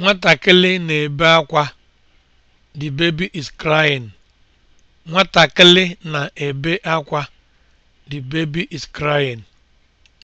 Nwatakịrị na-ebe akwa. The baby is crying. Nwatakịrị na-ebe akwa. The baby is crying.